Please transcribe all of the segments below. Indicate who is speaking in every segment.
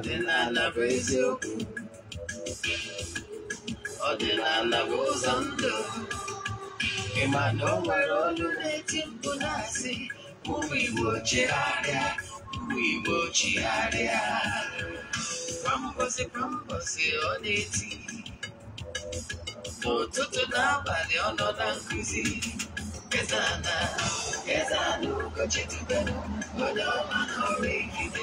Speaker 1: ọdịnala bụ eziokwu ọdịnala bụ ụzọ ndụ ịma na o nwere ọlụ na-eti mkpu na-asị ụmụ igbo chigharịa ụmụ igbo chigharịa kwambosi kwambosi ọ na-eti n'ụtụtụ n'abalị ọ nọ na nkụzi ezana ezana ụkọchitubelu onye ọma na ọrụ egide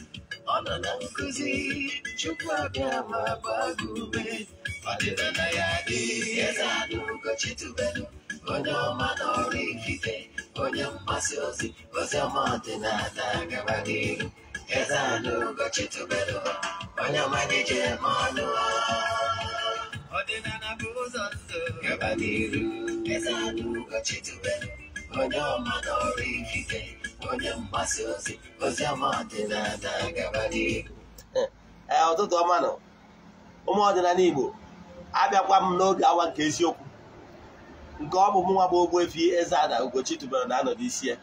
Speaker 1: ọnọnamkuzi chukwu abịa ma gbaa gị ume ọdịnala ya adịghị eze anụ gochitubelu onye ọma n'ọrụ ikike onye mgbasa ozi ozi ọdịnala gaba n'iru eze anụ gochitubelu onye ọma na-eje eme ọnụ ọdịnala bụ ụzọ ndụ gaba n'iru eze anụ gochitubelu onye ọma n'ọrụ ikike onye eh, mgbasa ozi eh, ozi ọma ee ụtụtụ ọma nọ ụmụ ọdịnala Igbo abịakwa m n'oge awa nke eziokwu nke ọ bụ m nwa bụ Ogbuefi Eze-Ana Ugochi tubelu na anọdụ isi ya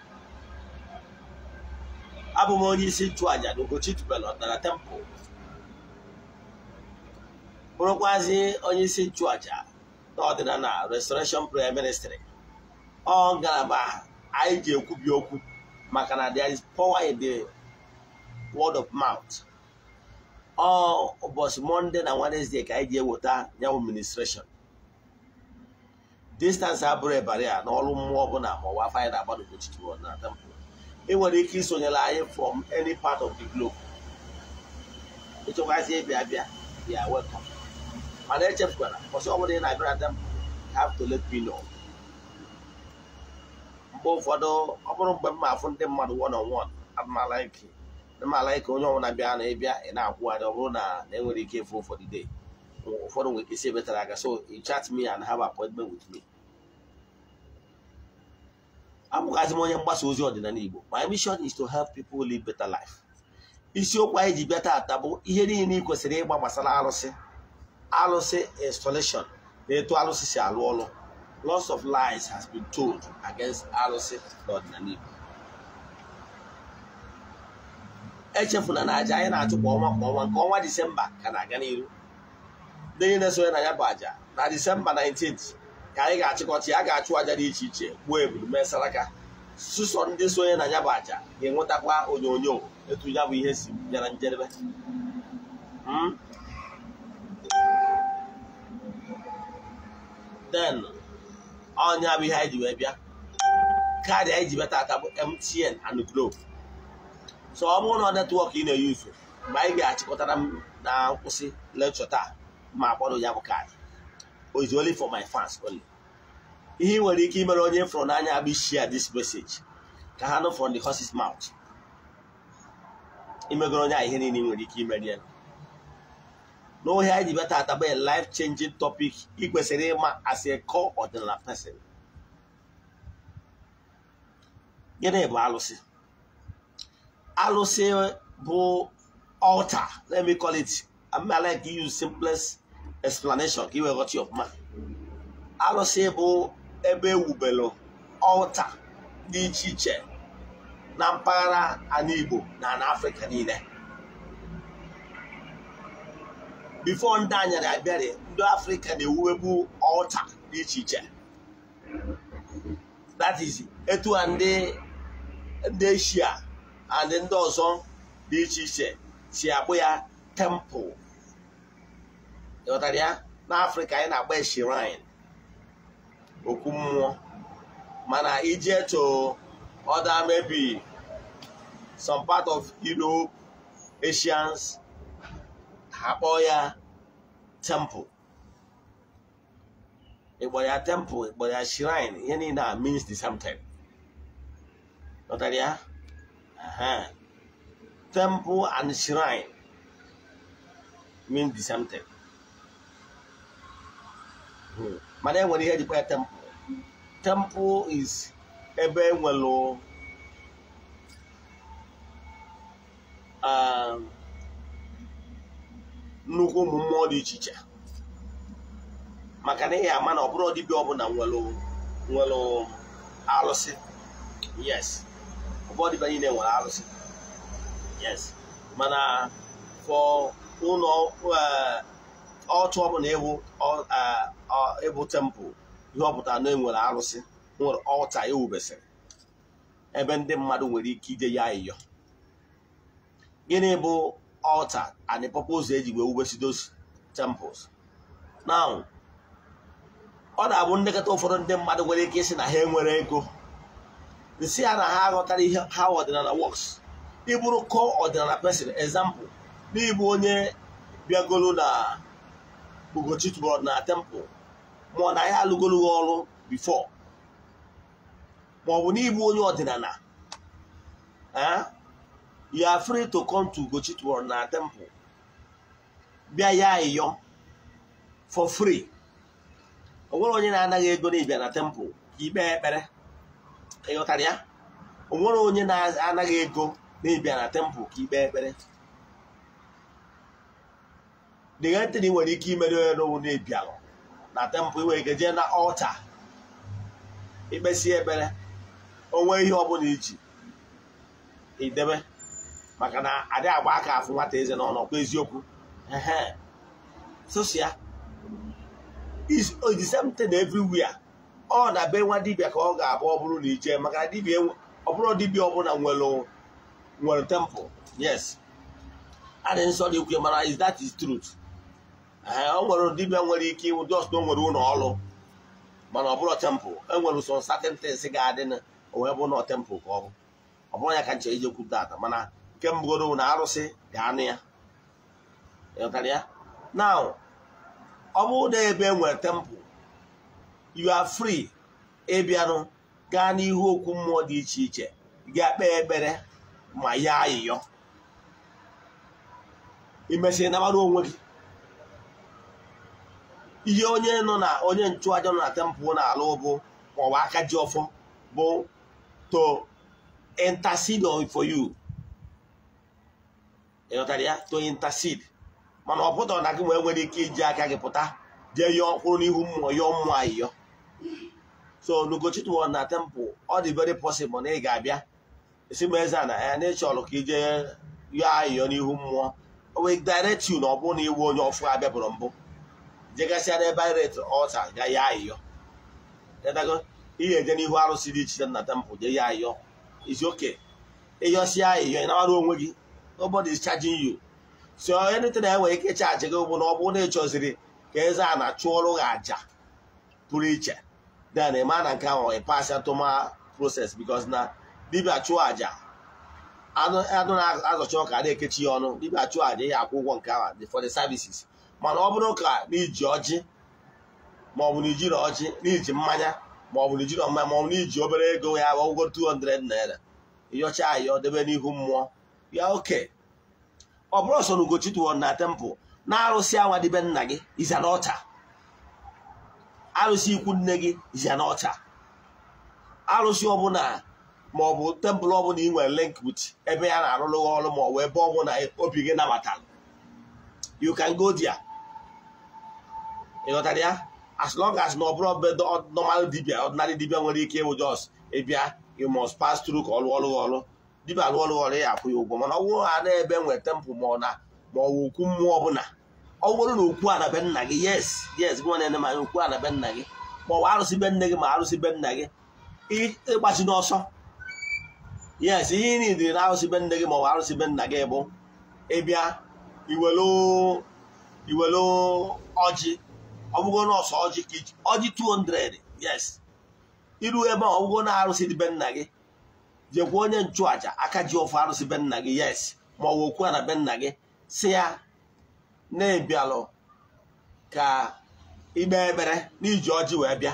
Speaker 1: abụ m onye isi nchụàjà na Ugochi tubelu Ọdịnala Temple bụrụkwazi onye isi nchụàjà na ọdịnala Restoration Prayer Ministry ọ ngalaba anyị ji ekwubi okwu maka na there is power in the word of mouth ọ ụbọchị Monday na Wednesday ka anyị ji eweta nyawu ministration distance abụrụ ebara ya n'ọrụ mmụọ ọbụla ma ọwa afọ anyị na-agbado na temple ị nwere ike isonyere anyị from any part of the globe ịchọkwazi ịbịa bịa bịa welcome mana echefukwana ọsọ ọbụla ị na-abịa na temple have to let me know mgbe ụfọdụ ọ bụrụ mgbe m afụ ndị mmadụ one on one amala ike onye ọbụla bịa na ịbịa ị na-akwụgharị ọ bụrụ na enwere ike ịfụ ụfọdụ day ụfọdụ nwere ike isi ebetara aka so you chat me and have appointment with me abụgazi m onye mgbasa ozi ọdịnala Igbo my mission is to help people live better life isiokwu anyị ji bịa taata bụ ihe niile ị kwesịrị ịgba gbasara arụsị arụsị installation na etu arụsị si alụ ọrụ lots of lies has been told against arụsị n'ọdịnala Igbo echefula na aja anyị na-achụ kwa ọnwa kwa ọnwa nke ọnwa disemba ka na-aga n'iru ndị niile sonye na ya bụ aja na disemba 19 ka anyị ga-achịkọta ya ga-achụ aja dị iche iche gbuo ebulu mee saraka sụsọ ndị sonye na ya bụ aja ga-enwetakwa onyonyo etu ya bụ ihe si bịara njedebe den hmm? ọnya bụ ihe anyị ji wee bịa kaadị anyị ji bịa bụ MTN and globe so ọ bụrụ na netwọk ị na-eyuzu mgbe anyị ga-achịkọtara m na nkwụsị lekchọ taa ma akpọrọ ya bụ kaadị o only for my fans only ihe nwere ike imere onye fọrọ n'anya bụ share this message ka ha nụ from the horse's mouth imegoro onye a ihe niile ị nwere ike imeri ya n'ohe anyị ji bịa tata bụ life changing topic ị kwesịrị ịma as a core ọdịnala person gịnị bụ alụsị alụsị bụ altar let me call it I like to use simplest explanation ka ị wee ghọta ọfụma alụsị bụ ebe ewubelu altar dị iche iche na mpaghara ala Igbo na ala Afrịka niile bifo ndị anyara abịarị ndị afrịka na-ewuwebu ọlta dị iche iche that is etu a ndị eshia and ndị ọzọ dị iche iche si akpụ ya temple ịghọtara ya africa anyị na-agba shrine okwu mmụọ mana ije to other maybe some part of Europe Asians ha kpọọ ya temple ịkpọrọ ya temple ịkpọrọ ya shrine ihe niile a means the same thing nọtara temple and shrine means the same thing hmm. mana enwere ihe jikwa ya temple temple is ebe enwere um, nnukwu ụmụ mmụọ dị iche iche maka na ihe ama na ọ bụrụ dibịa ọbụla nwere nwere alụsị yes ọ bụrụ dibịa niile nwere alụsị yes mana fọ ụlọ ọtụ ọbụla ewu tempụl ihe ọpụta na enwere arụsị nwere ọlta e ewubesịrị ebe ndị mmadụ nwere ike ide ya ịyọ gịnị bụ altar and the purpose eji wee wubesi those temples now ọ na-abụ nlekọta ụfọdụ ndị mmadụ nwere ike isi na ha enwere ego si ya na ha aghọtara ihe ha ọdịnala works ịbụrụ kọ ọdịnala person example n'ịbụ onye bịagolo na Bogo tụbọrọ na temple ma ọ na ya alụgologhị ọrụ before maọbụ n'ịbụ onye ọdịnala you are free to come to Ugochi tomorrow na temple bịa ya ịyọ for free o nwere onye na-anaghị ego na n'ịbịa na temple ikpe ekpere ịghọtara ya o nwere onye na-anaghị ego na n'ịbịa na temple ka ikpe ekpere ntị na ị nwere ike imere onye n'ụwụ na-ebialụ na temple nwere ike jee na ọlta ikpesi ekpere onwe ihe ọbụla iji idebe maka na adị agba aka afụ nwata eze na ọnọkwa eziokwu sosia is oh, the same thing ọ na be nwa dibia ka ọ ga-abụ ọ bụrụ na ije maka e ọ bụrụ dibịa ọbụla nwere temple yes adị nsọ dị ukwe mara is that is truth ọ nwere dibia nwere ike ịnwụ just na o nwere ụlọ ọrụ mana ọ bụrụ temple enwere some certain things ga-adị na o wee bụ na temple ka ọ bụ ọ bụrụ ya ka nche ije kwuta ata mana kemgbe na arụsị dị anụ ya ya na ọ bụrụ na ebe e nwere tempụl you are free ịbịanụ gaa n'ihu okwu mmụọ dị iche iche gaa kpee ekpere ma ya ayịyọ imesịrị nabara onwe gị ihe onye nọ na onye nchụaja nọ na tempụl na-alụ bụ maọbụ aka ji ọfọ bụ to intercede for you ịghọtara ya to intercede mana ọ pụtara na gị nwee nwere ike iji aka gị pụta jee yọọ kwụrụ n'ihu mmụọ yọọ mmụọ ayịyọ so n'ugochitụọ na tempụl ọ dị very possible na ị ga-abịa esi m eze na ya na ka ije yọọ ayịyọ n'ihu mmụọ o direct you na ọ bụrụ na iwu onye ọfụ abịabụrụ mbụ jegasịa n'ebe iret ọta ga ya ayịyọ ihe eje n'ihu arụsị dị iche na temple jee ya ayịyọ izu oke ịyọsịa ayịyọ ị na-arụ onwe gị nobody is charging you so anything na enwere ike chaji gị bụ na ọ bụ na ị ka eze a na chụọrụ gị aja pụrụ iche then ị na nke ahụ ị pas atụma proses because na dibịa chụọ aja anụ na-azọcha ọka a na-ekechi ya ọnụ dibịa chụọ aja ya akwụ ụgwọ nke ahụ for the services mana ọ bụrụ ka n'iji ọjị maọbụ na ijiri ọjị n'iji mmanya maọbụ na ijiri ọma maọbụ na iji obere ego ya ụgwọ 200 naira ịyọcha ayọ debe n'ihu mmụọ ya oke ọ bụrụ sọ na Ugochi na tempụl na-arụsị anwa dịbe nna gị iza arụsị ikwu nne gị iza arụsị ọbụla ma ọ bụ tempụl ọbụla ị nwere link with ebe ya na-arụrụ ọrụ ma ọ bụ ebe ọbụla obi gị nabatara you can go there ịghọtara ya as long as na ọ bụrụ be normal dibia ọdịnala dibia nwere ike ịwụ jos ịbịa you must pass through ka ọrụ ọrụ ọrụ dibịa alụ ọrụ ya akwụ ya ụgwọ mana ọ bụrụ ha na-ebe nweta mpụ ma ọ na ma ọ bụ okwu mmụọ ọbụla ọ bụrụ na okwu a na nna gị yes yes gị nwa na-ene manya okwu a na nna gị ma ọ bụ arụsị be nne gị ma arụsị be nna gị ịgbachi n'ọsọ yes ihe ị na arụsị be nne gị ma ọ bụ arụsị be nna gị bụ ịbịa iwelu ọjị ọ bụgo nọọsụ ọjị ọjị 200 yes iru ebe ọ bụgo na arụsị dị be nna gị jekwa onye nchụaja aka ji ofe arụsị be nna gị yes ma ọ wụ okwu a na be nna gị si ya na-ebialụ ka ikpe ekpere n'iji ọjị wee bịa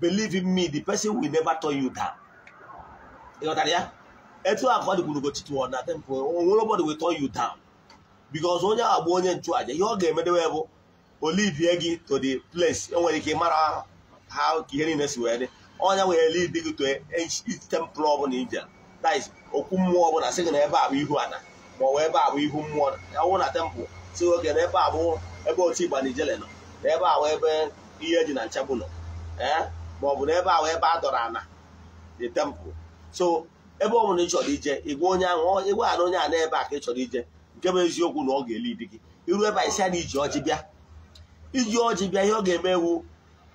Speaker 1: believe in me the person will never turn you down ịghọtara ya etu a ka ọ dịkwuru gochitu na temple onwere ụbọdụ will turn you down because onye ahụ agba onye nchụaja ihe ọ ga-emedewe bụ olivie gị to the place enwere ike ịmara ha ka ihe niile si wee dị ọnya wee ele idi gị toe tempụl ọbụla ije that okwu mmụọ ọbụla sị gị na ebe a bụ ihu ana ma ọ bụ ebe a bụ ihu mmụọ ya wụ na tempụl si oge na ebe a bụ ebe otu igba nijele nọ na ebe a ebe ihe dị na nchabụ nọ ee eh, ma ọ bụ na ebe a ebe a dọrọ ana dị temple so ebe ọ ị chọrọ ije ịgwa onye ahụ ịgwa ana onye a na ebe a ka ị chọrọ ije nke bụ eziokwu na ọ ga-eli di gị iru ebe a isi a na iji ọjị bịa iji ọjị bịa ihe ọ ga-eme ewu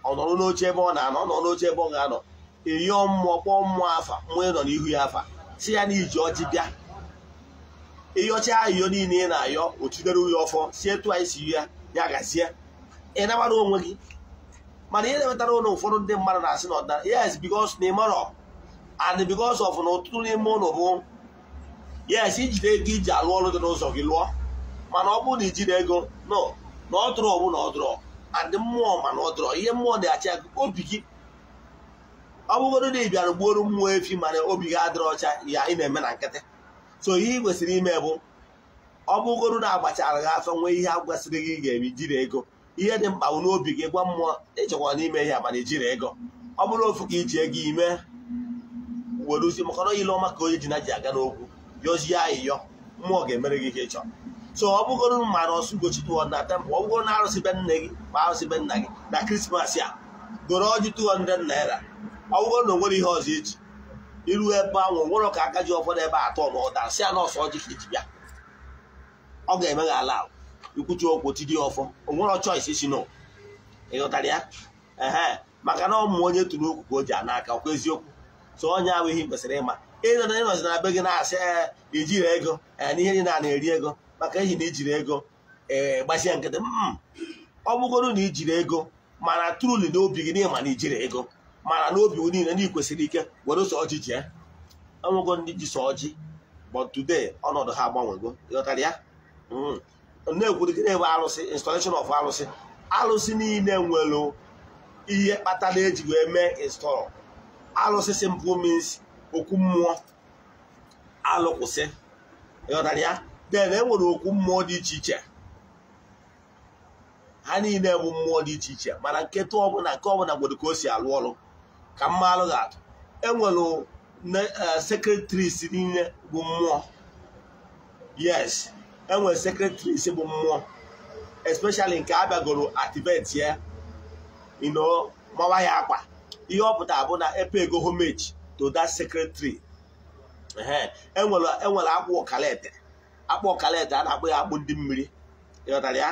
Speaker 1: ọ nọrọ n'oche ebe ọ na-anọ ọ nọ n'oche ebe ọ ga-anọ eyo mmụọ kpọọ mmụọ afa mmụọ nọ n'ihu ya afa si ya na iji ọjị bịa ịyọcha ayọ niile ị na-ayọ otidere uhe ọfọ si etu anyị si ya ya gazie ị nabara onwe gị mana ihe na ụlọ ụfọdụ ndị mmadụ na-asị na ọdịnala yes because na ịmarọ and because of na ụtụtụ n'ime ụlọ bụ yes ijide ego iji alụ ọrụ dị n'ụzọ gị lụọ mana ọ bụrụ na ijide ego no na ọ dụrụ ọbụ na ọ Adị mmụọ mana ọ dọrọ ihe mmụọ na-achị aka obi gị ọ na ị bịara gbuoro mmụọ efi mana obi gị adịrọ ọcha ya ị na-eme na nkịtị so ihe ị kwesịrị ime bụ ọ na agbachara gị afọ nwee ihe agwasịrị gị ga-eme ijiri ego ihe dị mkpa n'obi gị gwa mmụọ ịchekwa n'ime ihe mana ijiri ego ọ bụrụ ofu ka iji ego ime were uzi maka na ile ọma ka onye ji na ji aga n'okwu yọzie ayịyọ mmụọ ga-emere gị ihe ịchọrọ so ọ bụgoro mara ọsụ gochi na temple ọ bụgoro na arụsị be nne gị ma arụsị be nna gị na krismas a goro ọjị 200 naira ọ bụgoro na onwere ihe ọzọ eji iru ebe ahụ nwere ka aka ji ụfọdụ ebe atọ ma ọ dasị a nọọsụ ọjị ka eji bịa ọ ga-eme gị ala ikwuchi okwu dị ọfọ onwere choice si no ịghọtara ya ehe maka na ọmụ onye tụrụ okwu ka o ji a n'aka ọkwa eziokwu so onye ahụ ihe kwesịrị ịma ịnọzi na be gị na-asị ijiri ego na ihe niile a na-eri ego maka ehi na ijiri ego ee eh, gbasie nkịtị mm, ọ bụgoro na ijiri ego mana truli n'obi gị n'ịma na ijiri ego mana n'obi niile na ikwesịrị ike were sọ ọjị jee enwego ndị ji sọ ọjị but today ọnọdụ ha gbanwego ịghọtara ya na na ebe arụsị installation of arụsị arụsị niile nwere ihe kpatara eji wee mee install arụsị simple means okwu mmụọ alụkwụsị ịghọtara ya e enwere okwu mmụọ dị iche iche ha niile bụ mmụọ dị iche iche mana nketa ọbụla nke ọbụla gboro ka o si alụ ọrụ ka mma alụ ga atụ enwere e, sekretris niile bụ mmụọ yes enwere sekretris bụ mmụọ especially nke abịagoro activate ya ino mawa ya akwa ihe ọ pụtara bụ na epe ego homage to that secretary enwere e e akwa ọkalete akpụ ọkalete a na-akpụ ya akpụ ndị mmiri ịghọtara ya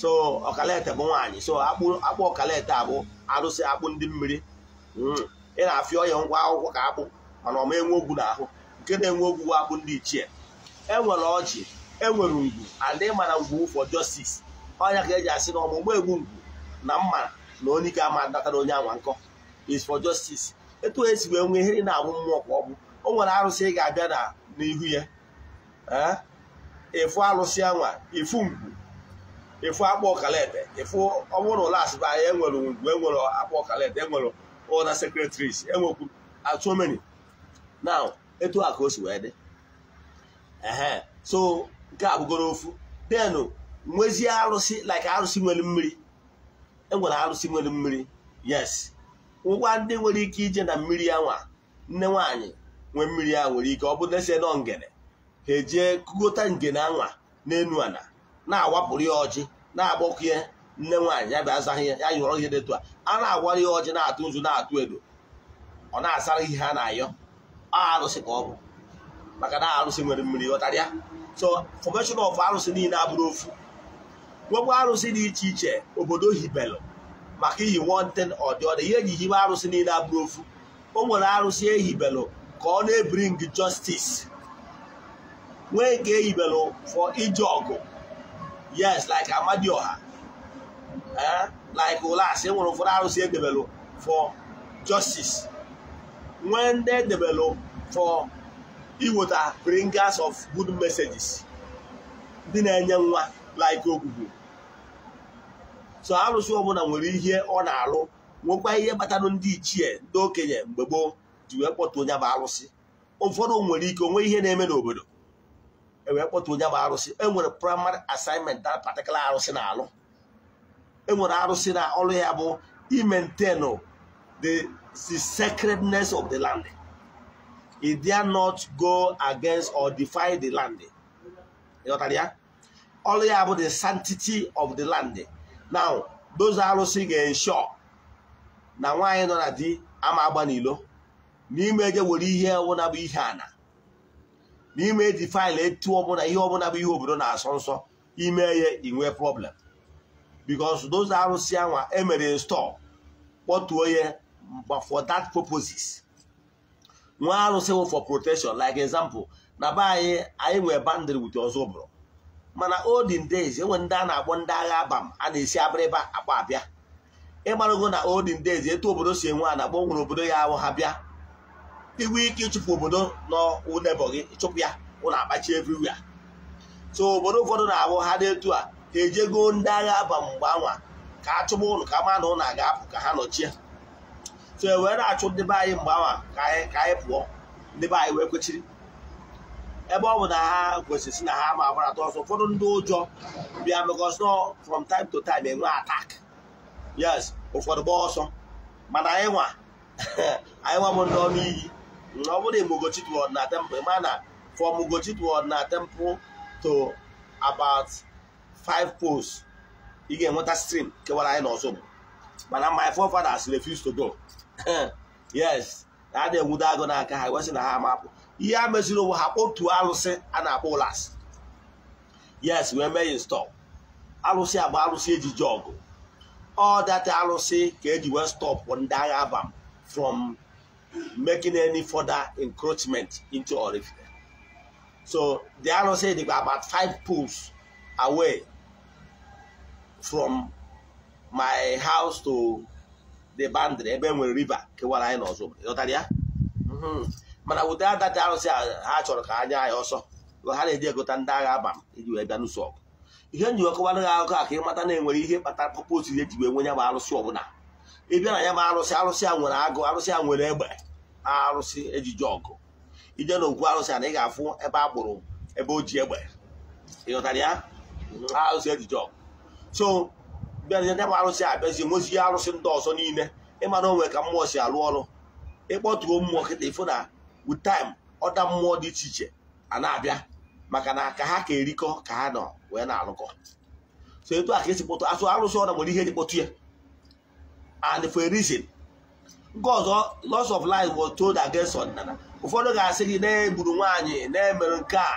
Speaker 1: so ọkalete bụ nwaanyị so akpụ ọkalete a bụ arụsị akpụ ndị mmiri hmm. ị na-afịa ọya ngwa akwụkwọ ka akpụ mana ọma enwe ogwu n'ahụ nke na-enwe ogwu bụ akpụ ndị ichie enwere ọjị enwere ngwu adị mana ngwu for justice ọnya ka eji asị na ọmụgbọ egwu ngwu na mma na onye ike ama datara onye anwa nkọ is for justice etu esi wee nwee ihe na-abụ mmụọ kwa ọ bụ o nwere arụsị ị ga-abịa na n'ihu ya efu alụsị anwa efu ngwu efu ọkala ọkalete efu ọbụrụ ụlọ asịba anyị enwere ngwu enwere akpa ọkalete enwere ụlọ sekretaris enwekwu atụmeni ah, na etu a ka o si wee dị ee so nke a bụgoro ofu denu nwezie arụsị like arụsị nwere mmiri enwere arụsị nwere mmiri yes ngwa ndị nwere ike ije na mmiri nwa nne nwaanyị nwee mmiri ya nwere ike ọ bụ na esi nọ ngene ha ejie kugota ngene anwa n'enu ana na-awapụrụ ya ọjị na-agbakọ ya nne nwaanyị ya bịa ya ya nyụrọ ihe detu a a na-agwara ya ọjị na-atụ nzu na-atụ edo ọ na-asara ihe ha na-ayọ arụsị ka ọ bụ maka na arụsị nwere mmiri ọtarịa so fọmeshọn ọf arụsị niile abụrụ ofu nwekwa arụsị dị iche iche obodo hibelụ maka iyi one ọdịọdị ihe eji hibe arụsị niile abụrụ ofu o nwere arụsị ehibelụ ka ọ na-ebring justice nwee nke eyibelụ for ije ọgụ yes like amadioha eh, like olas e nwere ụfọdụ arụsị edebelụ for justice nwee ndị edebelụ for iweta bringers of good messages ndị na-enye nwa like ogbugbo so arụsị ọbụla nwere ihe ọ na-alụ nwekwa ihe kpatara ndị ichie ndị okenye mgbe gboo ji wee kpọta onye bụ arụsị ụfọdụ nwere ike onwe ihe na-eme n'obodo ewee kpọta onye bụ arụsị enwere prịmarị asinment na patikụla arụsị na-alụ enwere arụsị na ọrụ ya bụ imentenu the sacredness of the land it dare not go against or defy the land ya ọrụ ya bụ the sanctity of the land now those arụsị ga-ensure na nwaanyị nọ na di ama agba n'ilo n'ime eje were ihe ọbụla bụ ihe ana n'ime eji faịlụ etu ọbụla ihe ọbụla bụ ihe obodo na-asọ nsọ ime ya inwe problem bikos those arụsị anwa emere install kpọtuo ya for that purposes nwa arụsị wụ for protection like example na be anyị anyị nwere bandịrị wute ọzọ bụrụ mana olden days enwe ndị a na-akpọ ndị agha abam a na-esi abịrịba akpa abịa ịgbarago na olden days etu obodo si enwe a na-akpọ nwere obodo ya ahụ ha bịa inwe ike ịchụpụ obodo nọ gị chụpụ ya ụlọ akpachi everywhere so obodo ụfọdụ na-abụ ha na etu a ha ejego ndị agha aba mgbe anwa ka a chụba ụlọ ka ma na ụlọ ga-apụ ka ha nọchie so e wee na-achụ ndị be anyị mgbe anwa ka anyị pụọ ndị be anyị wee kwechiri ebe ọ bụ na ha kwesịrị na ha ma agbarata ọsọ ụfọdụ ndị ụjọ bịa because no from time to time enwe attack yes ụfọdụ gba ọsọ mana anyị nwa anyị nwa bụ ndị iyi ọ bụrụ imugochitwu na temple ma na for mugochitwu na temple to about five post ị ga-enweta stream kewara anyị n'ọzọgbo mana my forefathers refuse to go yes na a na-enwudo agụ n'aka ha wesị na ha amapụ ihe a meziri onwe ha otu alụsị a na-akpọ ụlas yes wee mee install alụsị agba alụsị eji ji all ọ data alụsị ka eji wee stop ndị agha abam from making any further encroachment into Orifite. So they are not saying they about five pools away from my house to the boundary ebe nwere river kewara anyị n'ọzọ ịghọtara ya mm-hmm. mana wụta adata arụsị ha chọrọ ka anya anyị ọsọ ha na-eji egota ndị agha aba iji e wee bịa ọgụ ihe njiwe kọwara gị akụkọ a ka ịmata na enwere ihe kpatara pọpọs ihe e ji wee nwenye bụ arụsị ọbụla ị bịa na ya bụ arụsị arụsị a nwere agụ arụsị a nwere egbe arụsị ejije ọgụ ije okwu arụsị a na ị ga-afụ ebe agbụrụ ebe o ji egbe ịghọtara ya arụsị ejije ọgụ so bịa ya bụ arụsị a bịazie mozie arụsị ndị ọzọ niile ịmara onwe ka mmụọ si arụ ọrụ ịkpọtuo mmụọ kịta ịfụ na with ọda mmụọ dị iche iche a na-abịa maka na ka ha ka erikọ ka ha nọ wee na-alụkọ so etu a ka esi kpọtụ asụ arụsị ọda nwere ihe eji kpọtụ ya and for a reason nke loss of life was told against ọdịnala ụfọdụ ga-asị gị na-egburu nwaanyị na-emere nke a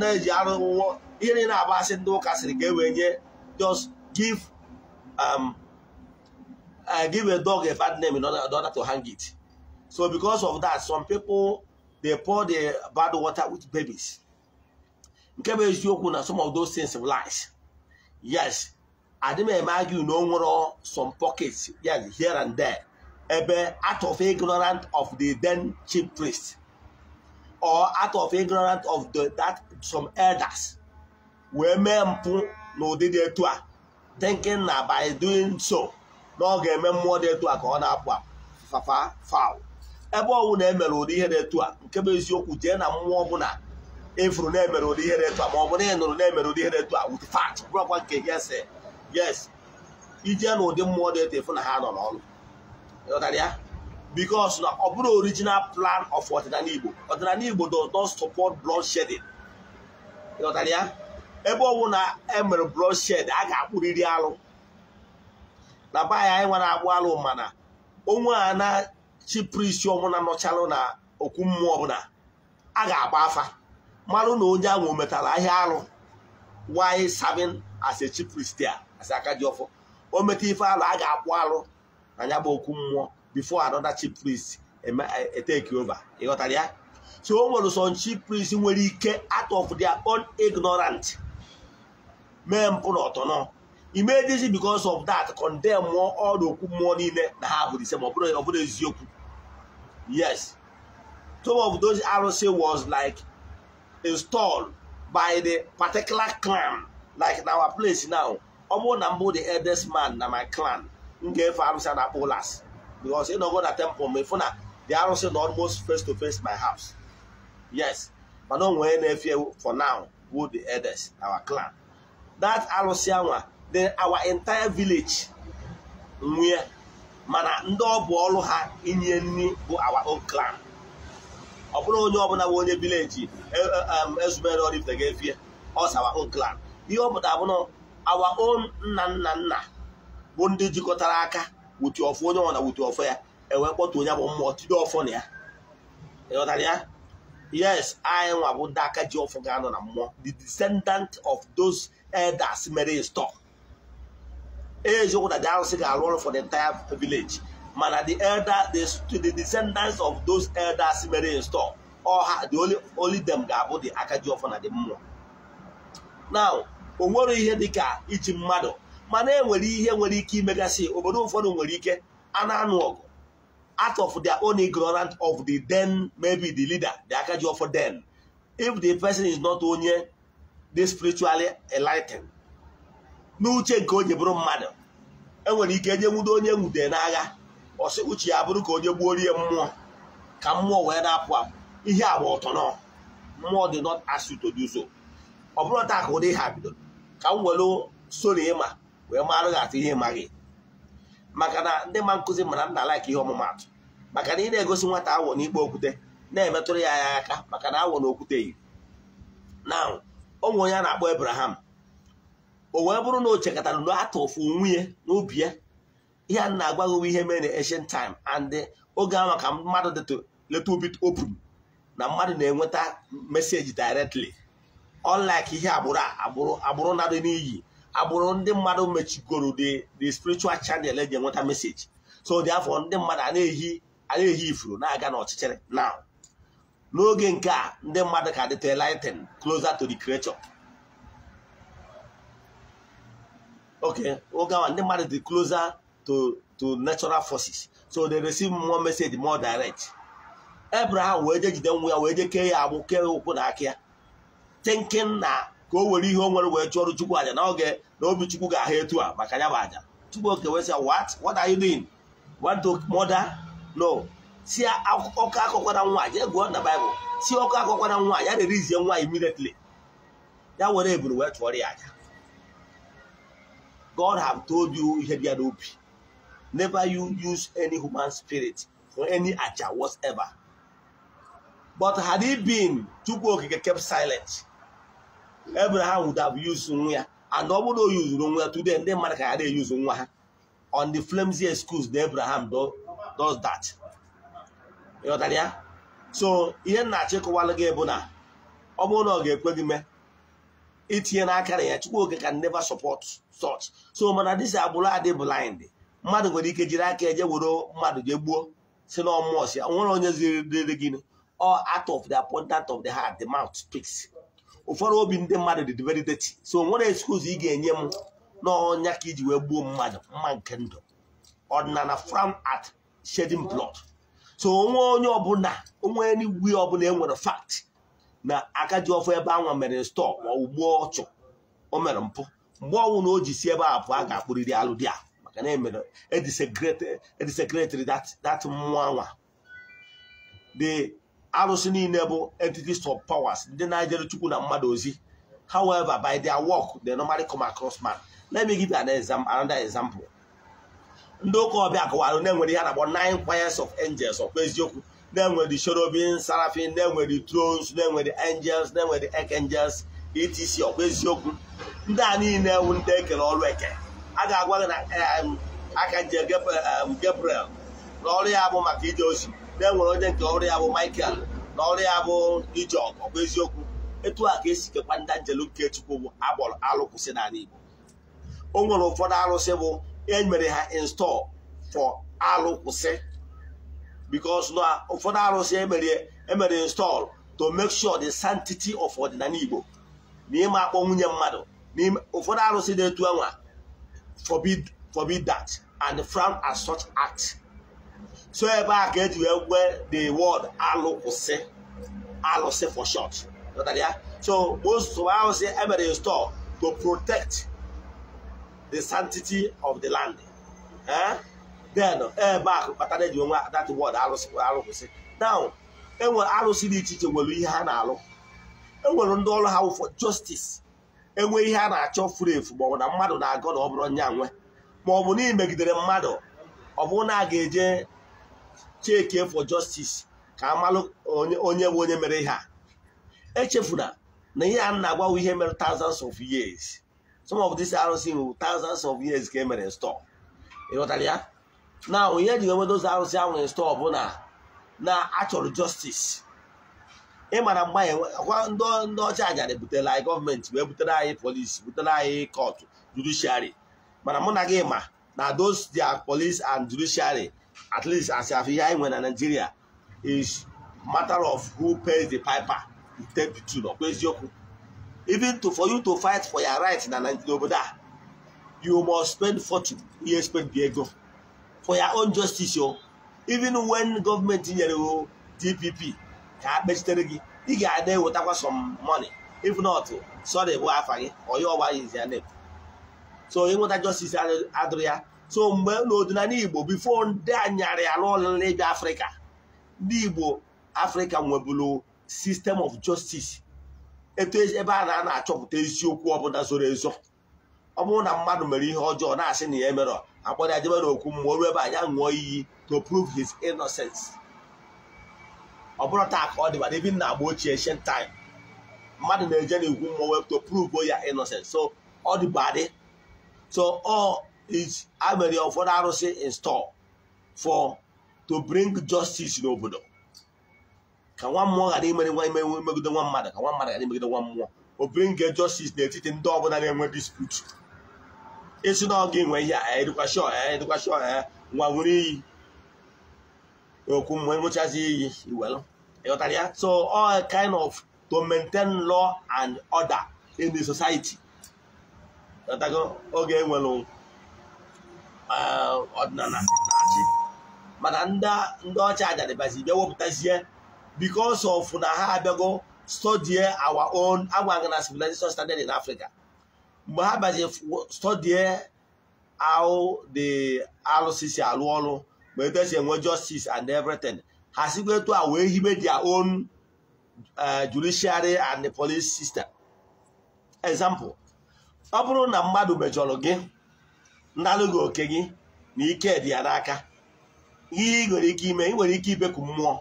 Speaker 1: na-eji arụ nwụọ ihe na-agba asị ndị ụka sịrị ka e nye just give um, uh, give a dog a bad name in order, in order to hang it so because of that some people dey pour the bad water with babies nke bụ eziokwu na some of those things lies yes adị m eme argue na o nwere some pockets yes here and there ebe out of ignorant of the then chief priest or out of ignorant of the, that some elders wee mee mpụ n'ụdị dị etu a thinking na by doing so na ọ ga-eme mmụọ dị etu a ka ọ na-apụ fafa fal ebe ọnwụ na-emere ụdị ihe dị etu a nke bụ eziokwu jee na mmụọ ọbụla efuru na-emere ụdị ihe dị etu a ma ọ bụ na ị nụrụ na-emere ụdị ihe dị etu a with fact bụrụkwa nke ya sị yes ijee na ụdị mmụọ dị etefu na ha nọ n'ọnụ ya because na ọ bụrụ original plan of ọdịnala Igbo ọdịnala Igbo does support bloodshedding ya ebe ọ bụ na emere bloodshed a ga-akpụrịrị alụ na be anyị anyị nwere agbụ alụ mana onwe a na-chi prisi ọbụla nọchalụ na okwu mmụọ ọbụla a ga-agba afa marụ na onye ahụ metara ahịa alụ why savin as a chief priest asị aka ji ọfọ o meta ife alụ a ga-akwụ alụ na ya bụ okwu mmụọ bifo anọda chief priest eteki e, e, ova ịghọtara ya so o nwere some chief priest nwere ike out of their own ignorant mee mpụ na ọtọnọ imedizi because of that condemn mmụọ ọrụ okwu mmụọ niile na ha bụ ise ma ọ bụrụ eziokwu yes some of those arụsị was like installed by the particular clan like in our place now ọ bụrụ na mbụ the eldest man na my clan m ga-efe arụsị na polas ụlas ị ịnọgo na temple ma ịfụ na the arụsị na almost face to face my house yes mana o nwee na-efe for now who the eldest our clan that arụsị anwa the our entire village nwee mana ndị ọbụ ọrụ ha inye nri bụ our own clan ọ bụrụ onye ọbụla bụ onye vileji e, e, um, ezumere ọrifte ga-efie ọs our own clan ihe ọ pụtara abụrụ our own nna nna nna bụ ndị jikọtara aka wuti ọfọ onye ọna wuti ọfọ ya enwee kpọtụ onye bụ mmụọ tide ọfọ na ya ịghọtara ya yes anyị nwa bụ ndị aka ji ọfụ ga-anọ na mmụọ the descendant of those elders mere stọọ eziokwu na the arụsị ga-arụ ọrụ for the entire village mana the elder the descendants of those elders mere stọọ ọha the only them ga-abụ the aka ji ọfọ na the mmụọ now o nwere ihe dị ka iji mmadụ mana enwere ihe nwere ike imegasị obodo ụfọdụ nwere ike a anụ ọgụ out of the only ignorance of the then maybe the leader the akaji of then if the person is not onye the spiritually enlightened n'uche nke onye bụrụ mmadụ enwere ike enye nwudo onye nwude n'agha ọsị uche ya bụrụ ka onye gbuo rie mmụọ ka mmụọ wee na-apụ apụ ihe agba ọtọ nọ mmụọ dị not as ọ bụrụ taa ka ụdị ha bidoro ka m welu soro ịma wee marụ gị atụ ihe ịmaghị maka na ndị ma nkụzi mana m na-alaik ihe ọmụmatụ maka na ị na-egosi nwata awọ n'ikpe okwute na-emetụrụ ya ya aka maka na awọ na okwute yi na onwe onye a na-akpọ Abraham o wee bụrụ na o chekatara na atụ ofu nwunye n'ubi ya ihe a na-agwa gị ihe mere na taim time and oge ahụ ka mmadụ letu obit open na mmadụ na-enweta meseji directly unlike ihe agbụrụ agbụrụ agbụrụ na-adị n'iyi agbụrụ ndị mmadụ mechigoro the spiritual channel eji enweta message so dị afọ ndị mmadụ ehi na-ehi ifuru na-aga n'ọchịchịrị now n'oge nke a ndị mmadụ ka dịta enlightened closer to the creator okay oge awa ndị mmadụ dị closer to to natural forces so they receive more message more direct Abraham wee jejide jide nwa ya wee jee kee ya agbụ kee ụkwụ na aka thinking na ka o were ihe o nwere wee chụọrụ chukwu aja n'oge na obi chukwu ga-ahụ etu a maka ya bụ aja chukwu oke wee sị what what are you doing want to murder no si ọkụ akọkwara nwa jee gụọ na baịbụl si ọkụ akọkwara nwa ya rerizie nwa immediately ya were eburu wee chụọrọ ya aja God have told you ihe bịa n'obi never you use any human spirit for any aja whatever but had he been chukwu okike kept silent Abraham would have used nwa ya and ọ bụrụ na o nwa ya today ndị mmadụ ka ya na-eyuzu nwa ha on the flimsy schools that Abraham does that ịghọtara ya so ihe nna-achọ gị bụ na ọ bụrụ na ọ ga-ekwe gị mee itinye n'aka na ya chukwu oge can never support such so mana dịsi agbụrụ adị blind mmadụ nwere ike jiri aka eje were mmadụ jee gbuo si na ya nwere onye ziri dịrị gị ọ out of the abundance of the heart the mouth speaks ụfọdụ obi ndị mmadụ dị very dirty so nwere excuse ị ga-enye m n'ọnya ka iji wee gbuo mmadụ mma nke ndụ ọdịnala from at shedding blood so onwe onye ọbụla onwe enigwe ọbụla e nwere fact na akaji ọfọ ebe anwa mere stọ ma ugbu ọchụ o mere mpụ mgbe ọnwụ na o ji si ebe a bụ a ga-akpụrịrị alụ dị a maka na emere edisekretịrị dat mmụọ anwa arụsị niile bụ entities of powers ndị na chukwu na mmadụ ozi however by their work they normally come across man let me give you an example another example ndị ụka ọbịa kọwara na-enwere ihe na nin nine of angels ọkpa eziokwu na-enwere cherubim seraphim na-enwere thrones na-enwere angels na-enwere archangels etc ọkwa eziokwu ndị a niile ewu ndị ekere ọrụ eke a ga-agwa gị na archangel Gabriel na ọrụ ya bụ maka ije ozi na enwere onye nke ọrụ ya bụ Michael na ọrụ ya bụ Ijeọgụ ọbụ eziokwu etu a ka esi kekwa ndị njelu nke Chukwu bụ agbọrọ alụkwụsị n'ala Igbo o nwere ụfọdụ arụsị bụ emere ha install for alụkwụsị because na ụfọdụ arụsị emere e install to mek sure the sanctity of ọdịnala Igbo na ịma akpọ nwunye mmadụ ụfọdụ arụsị na-etu anwa forbid dat and frown as such act so ebe a ka eji wee gwee the word alụkwụsị alụsị for short so most of ahụ si emere store to protect the sanctity of the land eh? then ebe a kpatara eji nwe that word alụsị alụkwụsị now enwere alụsị dị iche iche nwere ihe ha na-alụ enwere ndị ọrụ ha for justice enwe ihe a na-achọ furu efu ma ọ bụ na mmadụ na-agọ na ọ bụrụ nya nwe ma ọ bụ na imegidere mmadụ ọ bụrụ na a ga-eje chike for justice ka amalụ onye bụ onye mere ihe a echefula na ihe a na ihe mere thousands of years some of this arụsị nwere thousands of years ka e mere stọọ ịghọtara ya na onye ji enwedo ozi arụsị ahụ store bụ na na achọrọ justice ịmara mgba ndị ọcha ajara butere anyị gọọmenti wee butere anyị polisi butere anyị kọtụ judiciary mana mụ na gị ma na those their police and judiciary at least as afiya anyị nwere na Nigeria is matter of who pays the piper you ten to two ọkwa eziokwu even to for you to fight for your right na obodo a you must spend fortune you spend bi ego for your own justice o even when government nyere o DPP ka ha kpechitere gị ị ga-ada ewetakwa some money if not sorry bụ afa gị onye ọgba ya izi ya so ịnweta justice adịrị ya so mgbe n'ọdịnala igbo bifo ndị anyarị ala ọlịla ịbịa afrịka ndị igbo afrịka nwebụrụ sistem of justice etu e, ebe a na na-achọpụta eziokwu ọbụla zoro ezo ọ bụrụ na mmadụ mere ihe ọjọọ na-asị na ya emerọ akpọrọ ya jebe n'okwu mmụọ ruo ebe anya ṅụọ iyi to prove his innocence ọ bụrụ taa ka ọ dị na ebi na agba ochie ancient time mmadụ na-eje na mmụọ wepụ to prove ya innocence so ọ dịbadị so ọ amere ụfọdụ arụsị in store for to bring justice n'obodo ka nwa mmụọ ghara imere nwa ime megide nwa mmadụ ka nwa mmadụ ghara imegide nwa mmụọ o bring justice n'etiti ndị ọbụla na-enwe dispute esi na ọ ga-enwe ihe a edukashọ edukashọ nwa nwere iyi okwu mgbe nwụchazi iyi iwelu ịghọtara ya so all kind of to maintain law and order in the society oge enwere ọdịnala eh, na-achị mana ndị ọcha adadịbazi bịa wepụtazie because of na ha abịago studie our own agwaghị na civilization standard in Africa mgbe ha bazi studie how the alụsisi alụ ọrụ ma etu enwe justice and everything ha sikwa etu a wee hibe dia own eh, judiciary and the police system example ọ bụrụ na mmadụ mejọrọ gị ndalụghị oke gị na ike dị ya n'aka ihe ị nwere ike ime ị nwere ike ibeku mmụọ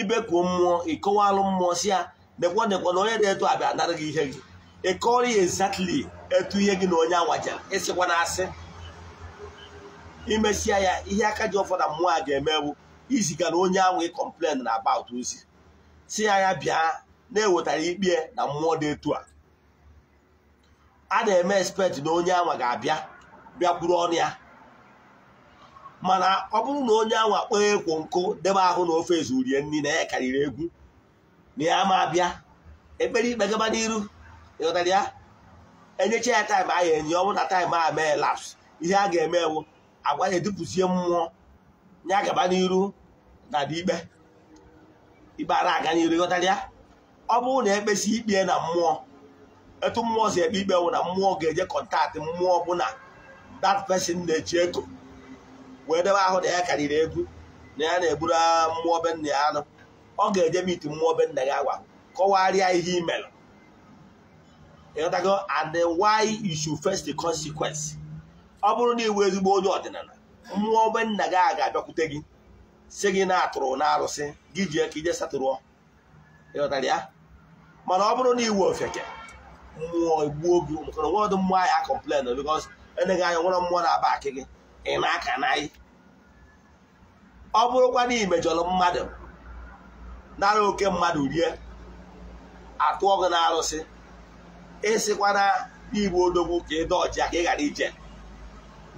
Speaker 1: ibeku mmụọ ịkọwalụ mmụọ si ya dekwa dekwa na onye na etu abịa anara gị ihe gị ịkọrọ ya exactly etu ihe gị na onye anwajara ịsịkwa na asị imesia ya ihe aka ji ụfọdụ mmụọ a ga-eme bụ iziga na onye ahụ ịkọmplen na about ozi si ya ya bịa na-ewetara ikpe na mmụọ dị etu a a na-eme expect na onye anwa ga-abịa bịakwuru ọnụ ya mana ọ bụrụ na onye anwa kpọọ ekwo nkụ debe ahụ na ofe ezurie nri na ya karịrị egwu na ya ma abịa ekpere ikpe gaba n'iru ịghọtara ya enyecha ya taịm ahụ enye ọnwụ na taịm a mee laps ihe a ga-eme ewu agwa ya edupụzie mmụọ ya gaba n'iru na ikpe ikpe ara aga n'iru ịghọtara ya ọ bụrụ na ekpesi ikpe na mmụọ etu mmụọ si ekpe ikpe wụ na mmụọ ga-eje kọntaktị mmụọ ọbụla dat pesin na-eji ego wee debe ahụ na ya karịrị egwu na ya na-eburu mmụọ be nna ya anụ ọ ga-eje miti mmụọ be nna ya agwa kọwarịa ihe imelụ ịghọtago and why you should face the consequence ọ bụrụ na iwu ezigbo onye ọdịnala mmụọ be nna gị a ga-abịakwute gị si gị na-atụrụ na arụsị gị ji aka ije satụrụọ ịghọtara ya mana ọ bụrụ na iwu ofeke mmụọ egbuo gị maka na nwadụ mmụọ anyị akọmplen bikos eneghị anya nwere mmụọ na-aba akị gị ị na-aka n'anyị ọ bụrụkwa na imejọrọ mmadụ nara oke mmadụ rie atụọ gị na-arụsị ịsịkwa na igbu odogwu ka ịdọ ọcha ka ị ghara ije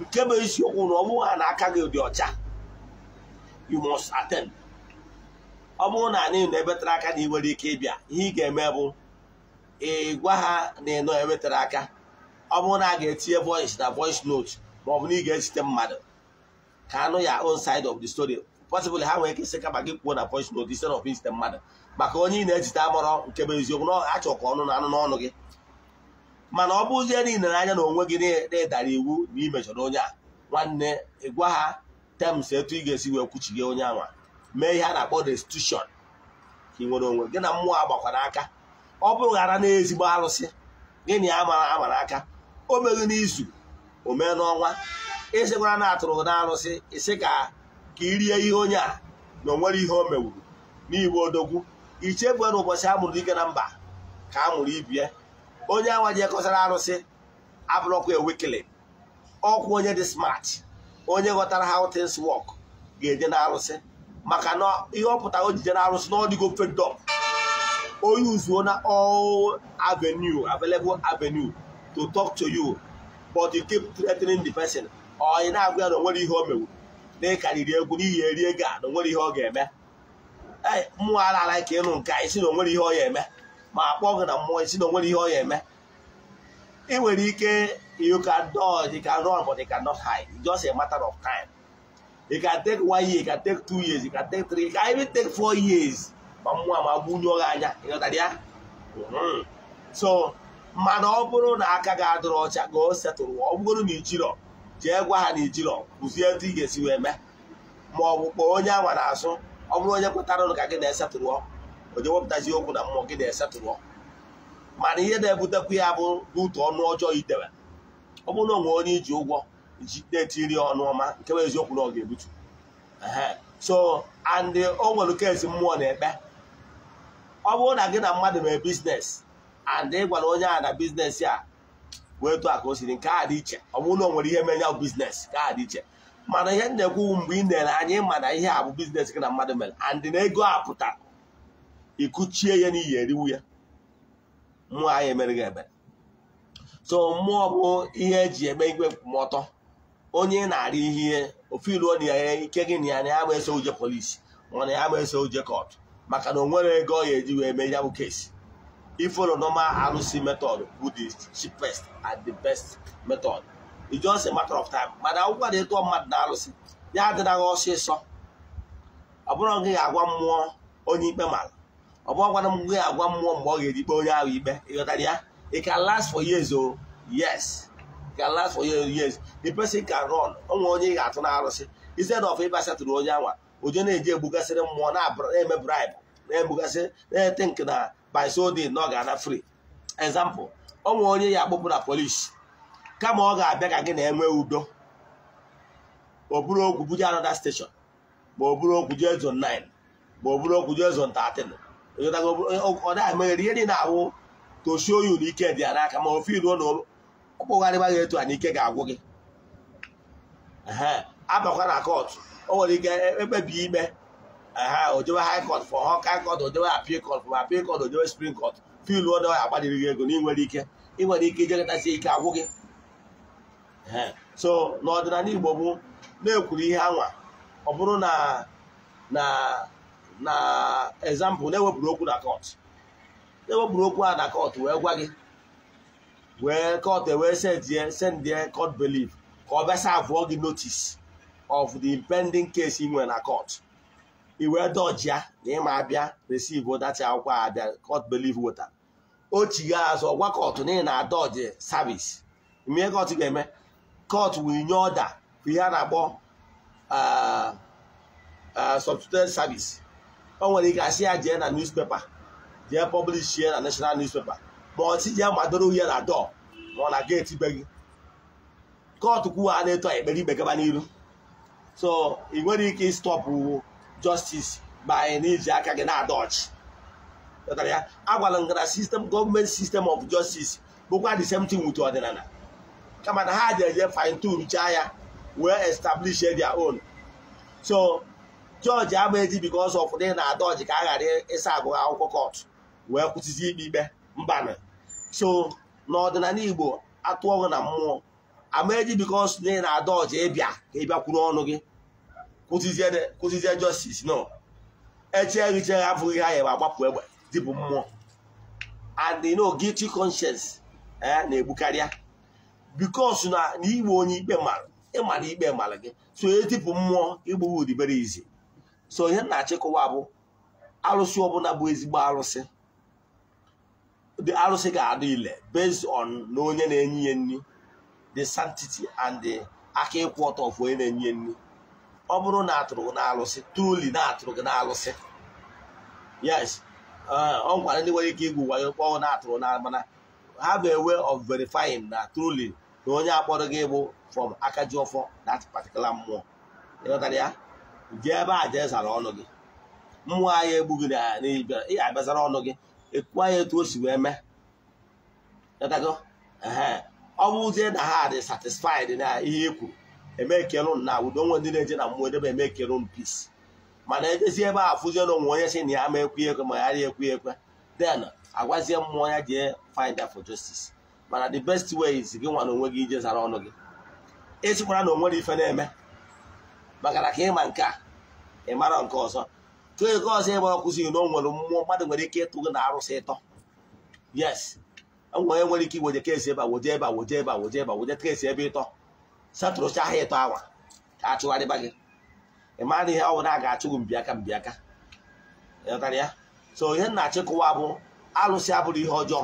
Speaker 1: nke bụ isiokwu na ọ bụghị ha na aka gị dị ọcha you must ọ bụrụ na anyị na tara aka na ị nwere ike ịbịa ihe ị ga-eme bụ ị gwa ha na ịnọ enwetara aka ọ bụrụ na a ga-etinye voice na voice note ma ọ bụ na ị ga-ezite mmadụ ka anụ ya on side of the story possibly ha nwere ike isi kama gị kwuo na voice note instead of izite mmadụ maka onye ị na-ezite amụrọ nke bụ eziokwu na achọ ka ọnụ na anụ n'ọnụ gị mana ọ bụzie niile n'anya na onwe gị na-edara iwu na imejọrọ onye a nwanne ị gwa ha tems etu ị ga-esi wee gị onye anwa mee ihe a na-akpọ restitution ka ị nwere onwe gị na mmụọ agbakwara aka ọ bụrụ ghara na ezigbo arụsị gịnị ya amara aka o meghị n'izu o mee n'ọnwa ịsịkwara e na atụrụ na alụsị ịsị ka ka irie ihe onye a na onwere ihe o mewuru n'igbo odogwu ichebue na ụbọchị a mụrụ ike na mba ka a mụrụ ibie onye awa ji ekọsara arụsị abụrụkwa ewekele ọkwụ onye dị smart onye ghọtara ha things work ga-eje na arụsị maka na ihe ọ pụtara o jije na arụsị n'ọdịgo ọ or oh, use one all avenue, available avenue to talk to you, but you keep threatening the person. Or oh, you now na onwere ihe o mewu. Na riri egwu n'ihi eri ego a na onwere ihe ọ ga-eme. Mmụọ ala ala ka ịnụ nke isi na onwere ihe ọ ya eme ma akpọ gị na mmụọ isi na onwere ihe ọ ya eme. Ị nwere ike you can dodge, you can run, but you cannot hide. It's just a matter of time. You can take one year, you can take two years, you can take three, you can even take four years. ma mmụọ ma gbunye gị anya ịghọtara ya hmm. so mana ọ bụrụ na aka ga adịrọ ọcha ga o setụrụ ọ bụgoro na ijirọ jee gwa ha na ijirọ kụzie etu ị ga-esi wee mee ma ọ bụ kpọọ onye anwa na-asụ ọ bụrụ onye kwetara ụlụ ka gị na-esetụrụ onye wepụtazi okwu na mmụọ gị na-esetụrụ mana ihe na-ebutekwu ya bụ n'utu ọnụ ọjọọ idewe ọ bụrụ na onwe onye iji ụgwọ ji na-etiri ọnụ ọma nke bụ eziokwu na ọ ga-ebutu so and o nwere mmụọ na-ekpe ọ bụrụ na gị na mmadụ mee biznes and ị gwara onye a na biznes ya wee tụ aka o siri nke a dị iche ọ bụrụ na o nwere ihe mee ya biznes ka a dị iche mana ihe na-ekwu mgbe ị na ere anya ịma na ihe a bụ biznes gị na mmadụ mere and na ego a pụta ịkụchie ya n'ihi eriwu ya mmụọ anyị emere gị ebere so mmụọ bụ ihe eji eme igwe nkwụmọtọ onye na-arị ihe ofe iruo na ya ike gị na ya na ya ma eso uje polisi mana ya ma eso uje kọtụ maka na onwere ego ọ ya eji wee mee ya bụ kesi ifolo normal arụsị method bụ the cheapest and the best method it's just a matter of time mana akwụkwọ na ịtụọ mmadụ na arụsị ya adịnaghị ọsịsọ ọ bụrụ gị ga-agwa mmụọ onye ikpe mara ọ bụrụ gwara m gị agwa mmụọ mgbe ọ ga-eji kpee onye ahụ ikpe ịghọtara ya it can last for years o oh. yes it can last for years the person can run o onye ị ga-atụ na arụsị instead of ịbasatụrụ onye anwa oje na-eje egbugasịrị mmụọ na-eme bribe na-egbugasị na-ete nke na by na ọ ga-ana free example ọ nwere onye ya akpụpụ na polish kama ọ ga-abịa ka gị na-enwe udo ma ọ bụrụ okwu buje anọda steshọn ma ọ bụrụ okwu jee zon 9 ma ọ bụrụ okwu jee zon 13 ọ da emeghere ihe niile ahụ toshio yu na ike dị ya n'aka ma ofe iruo na ọkpụgharịba gị etu a na ike ga-agwụ gị abakwa na kọtụ o nwere ike ekpebi ime ha ojewe high court for ha high court ojewe appeal court for appeal court ojewe supreme court filu ya agbalịrị gị ego na ị nwere ike ịnwere nwere ike ijegọtasị ike agwụ gị so n'ọdịnala Igbo bụ na-ekwuru ihe anwa ọ bụrụ na na na example na-ewepụrụ okwu na court na-ewepụrụ okwu a na court wee gwa gị wee court wee sendie sendie court belief ka ọ bịasa sa avụọ gị notice of the pending case ị nwere na court i wee ya na ịma abịa receive dachi akwụkwọ abịa court believe weta o azụ gwa kọtụ na ị na-adọji service mee kọtụ ga-eme kot wee nye ọda ihe a na-akpọ uh, uh, substituted service o nwere ike asị ya jee na newspaper jee publish ya na national newspaper ma ọtị jee madoro uhie na dọ ma ọ na geeti be gị kọtụ kwuo a na-eto ekpere ikpe gaba n'iru so ị nwere ike ịstọpụ justice by n'iji aka gị na-adọchị ya agwala m na sistem gọọmenti sistem of justice bụkwa the same thing with ọdịnala kama na ha ji eje fine tune chaa ya wee establish their own so jọji ama eji because of na na-adọji ka a ghara ịsa agụ akwụkwọ kọtụ wee kwụsịzi ikpe ikpe mbana so n'ọdịnala igbo atụọghị na mmụọ amaeji eh, e e eh, because na ị na-ada ọcha ịbịa ka ị bịakwuru ọnụ gị kwụsịzie justice no eche ehiche ha abụghị ha yebe agbapụ egbe dịbụ mmụọ and no guilty conscience na-egbukarịa bikos na igbe onye ikpe mara ịmara ikpe mara gị so etipụ mmụọ igbughi udibere izi so ihe na-achịkọwa bụ arụsị ọbụla bụ ezigbo arụsị arụsị ga-adị ile based on na onye na-enye ya nri the sanctity and the aka ịkwụ of onye na-enye nri ọ bụrụ na atụrụ gị na-alụsị truly na atụrụ gị na-alụsị yes ọ gwara ndị nwere ike igwu wayo kpọọ na atụrụ na mana ha bụ ewe of verifying na truly na onye akpọrọ gị bụ from aka ji that particular mmụọ ịghọtara ya jee ebe a jee zara ọnụ gị mmụọ anyị egbughị n'ibia ị abịazara ọnụ gị ekwu ya etu o si wee mee ọ na ha dị satisfied na ihe e kwuru eme ekelu na udo onwe ndị na-eje na mmụọ edebe eme ekelu peace mana ejezi ebe a afụzie na onwe onye si na ya ma ekwe ekwe ma ya ekwe ekwe then agwazie mmụọ ya jee find for justice mana the best way is gị nwa na onwe gị ije zara ọnụ gị esikwara na onwere ife na-eme maka na ka ịma nke a ị mara nke ọzọ tụọ ego ọzọ ịgba ọ na o nwere mmụọ mmadụ nwere ike ịtụ gị na arụsị ịtọ yes onye nwere ike igweje keesi ebe awoje ebe awoje ebe awoje ebe awoje ebe ịtọ satụrụcha ahịa ịtọ awa ka achụgharịba gị ị na ihe bụla a ga-achụ gị mbịaka mbịaka ịghọtara ya so ihe nna achịkọwa bụ alụsị abụrụ ihe ọjọọ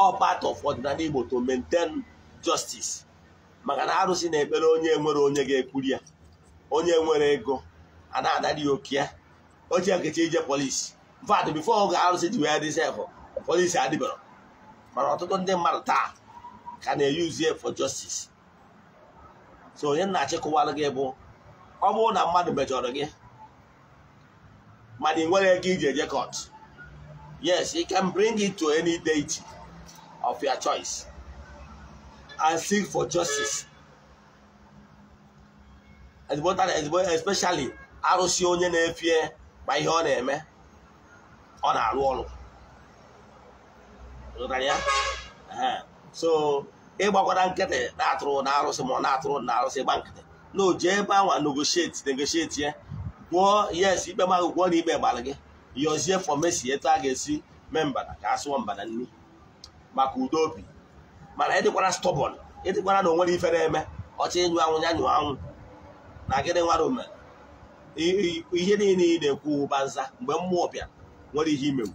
Speaker 1: all part of ọdịnala Igbo to maintain justice maka na arụsị na-ekpere onye nwere onye ga-ekwuri ya onye nwere ego a na-adara ya oke ya ochie nkechi ije polisi mfadụ bifo oge arụsị ji wee dịsefụ polisi adịbara mana ọtụtụ ndị mmadụ taa ka na-eyuzie for justice so onye nna achịkọwalụ gị bụ ọ bụrụ na mmadụ mejọrọ gị mana ị nwere ego iji eje court yes you can bring it to any deity of your choice and seek for justice especially arụsị onye na-efie ma ihe ọ na-eme ọ na-arụ ọrụ ya so ịgbakwara nkịtị na-atụrụ na arụsị ma ọ na-atụrụ na arụsị gba nkịtị na o ebe anwa negotiate negotiate ya gwụọ yes ikpe ma gwụọ na ikpe gbara gị yọzie fọmesi etu a ga-esi mee mbada ka a sụọ mbada nri maka udo obi mana ịdịkwara stọbọn ịdịkwara na o nwere ife na-eme ọcha ịnyụ anwụ ya nyụọ anwụ na gịnị nwara mere ihe niile ị na-ekwu ụba nza mgbe mmụọ bịa nwere ihe imewu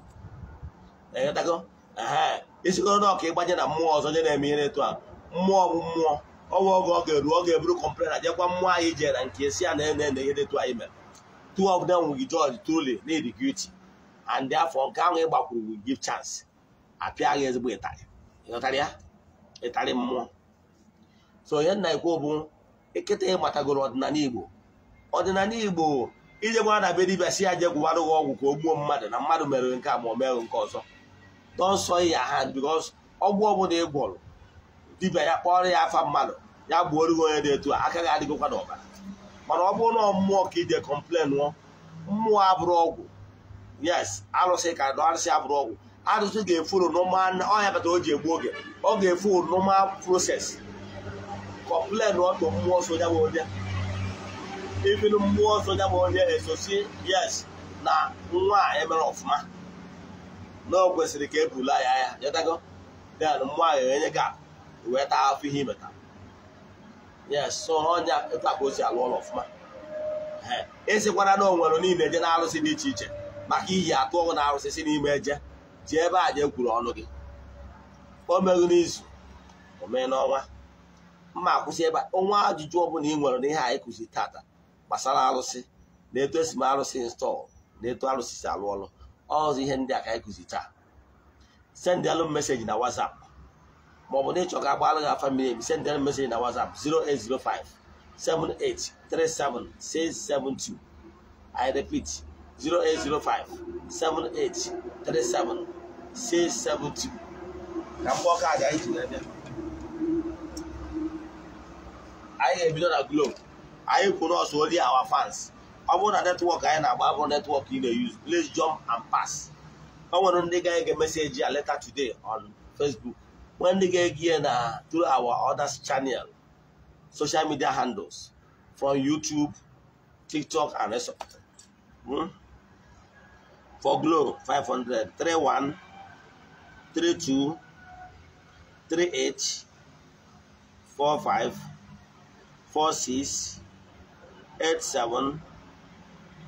Speaker 1: esigoro na ịgba ịgbanye na mmụọ ọzọ nye na-eme ihe etu a mmụọ bụ mmụọ ọnwa oge ọ ga-eru ọ ga-eburu kọmplena jekwa mmụọ anyị jere na nke esi a na ene ene ihe etu anyị mere two of them will judge truly need guilty and therefore nke ahụ ịgbakwuru will give chance apịa gị ezigbo ịtarị ịghọtara ya ịtarị mmụọ so ihe nna ikwu bụ ekete matagoro ọdịnala igbo ọdịnala igbo ijegwara na be dibịa si ya gị ọgwụ ka o gbuo mmadụ na mmadụ mere nke a ma o nke ọzọ nọnsọ ya ha because ọgwụ ọbụla ị gwọrọ dibịa ya kpọrọ ya afa mmadụ ya gbuoro gị onye dị etu a aka gị adịgokwa n'ọbara mana ọ bụrụ na mmụọ ka ije kọmplen nụọ mmụọ abụrụ ọgwụ yes arụsị ka na arụsị abụrụ ọgwụ arụsị ga-efuru ọhịa bata o ji egbu oge ọ ga-efu normal proses kọmplen ọtụ mmụọ soja bụ onye ibinu mmụọ soja bụ onye esosi yes na nwa a emere ọfụma na ọ kwesịrị ka e bula ya ya nyetago den mmụọ ahụ enye gị akụ e wee taa afọ ihe imeta ya so ọnya etu akpa alụ ụlọ ọfụma esikwara e na onwere niile je na arụsị dị iche iche maka iyi atụ ọgụ na arụsị si n'ime eje ji ebe a je egwuru ọnụ gị o n'izu o mee n'ọnwa mma akwụsị ebe ọnwa ajụjụ ọbụla ị nwere n'ihe anyị kụziri tata gbasara arụsị na eto esi m arụsị install na eto arụsị si alụ ọlụ ọzọ ihe ndị a ka anyị kụzi taa sendịalụ meseji na WhatsApp ma ọ bụ na ịchọ ka agbalụ gị afa mmiri emi meseji na WhatsApp 0805 7837672 I repeat 0805 ka mgbe kaadị aga anyị ji na-abịa anyị ga-ebido na Globe anyị oli awa fans ọ bụrụ na netwọk anyị na-agba abụrụ netwọk ị na-eyuzu please jump and pass o nwere ndị ga ege meseji a letter today on Facebook nwee ndị ga-ege ya na through our other channel social media handles from YouTube TikTok and so hmm? for Glo 500 31 32 38 45 46 87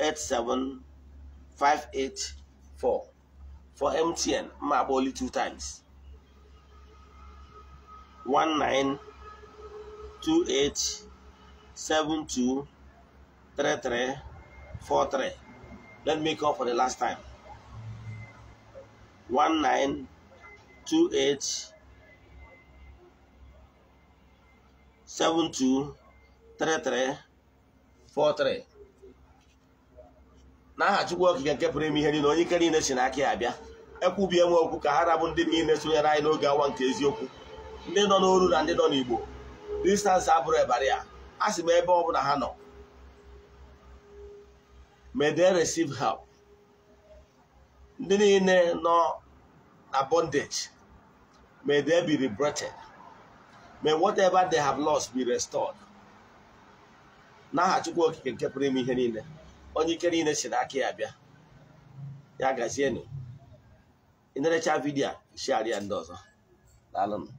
Speaker 1: 87584 for MTN map two times One nine two eight seven two three three four three. let me call for the last time One nine two eight seven two three three four three. n'aha Chukwu Okike nke pụrụ ime ihe niile onye ike niile si n'aka ya bịa ekwubie nwe okwu ka ha rabụ ndị niile sonyere anyị n'oge awa nke eziokwu ndị nọ n'oru na ndị nọ n'Igbo distansị abụrụ ebara ya a sị m ebe ọ bụla ha nọ may they receive ndị niile nọ na bondage may they be liberated may whatever they have lost be restored n'aha Chukwu Okike nke pụrụ ime ihe niile onye ike niile si n'aka ya bịa ya gazienụ ịnerecha vidiyo a shịarịa ndị ọzọ daalụnụ